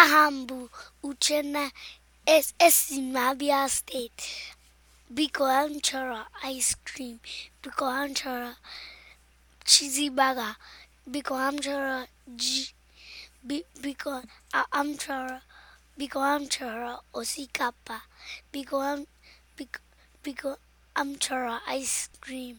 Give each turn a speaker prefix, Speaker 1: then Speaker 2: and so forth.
Speaker 1: aha m bụ Uchenna esi m steeti biko m ice cream biko m chọrọ cheesy burger biko m chọrọ biko m biko osikapa biko m biko ice cream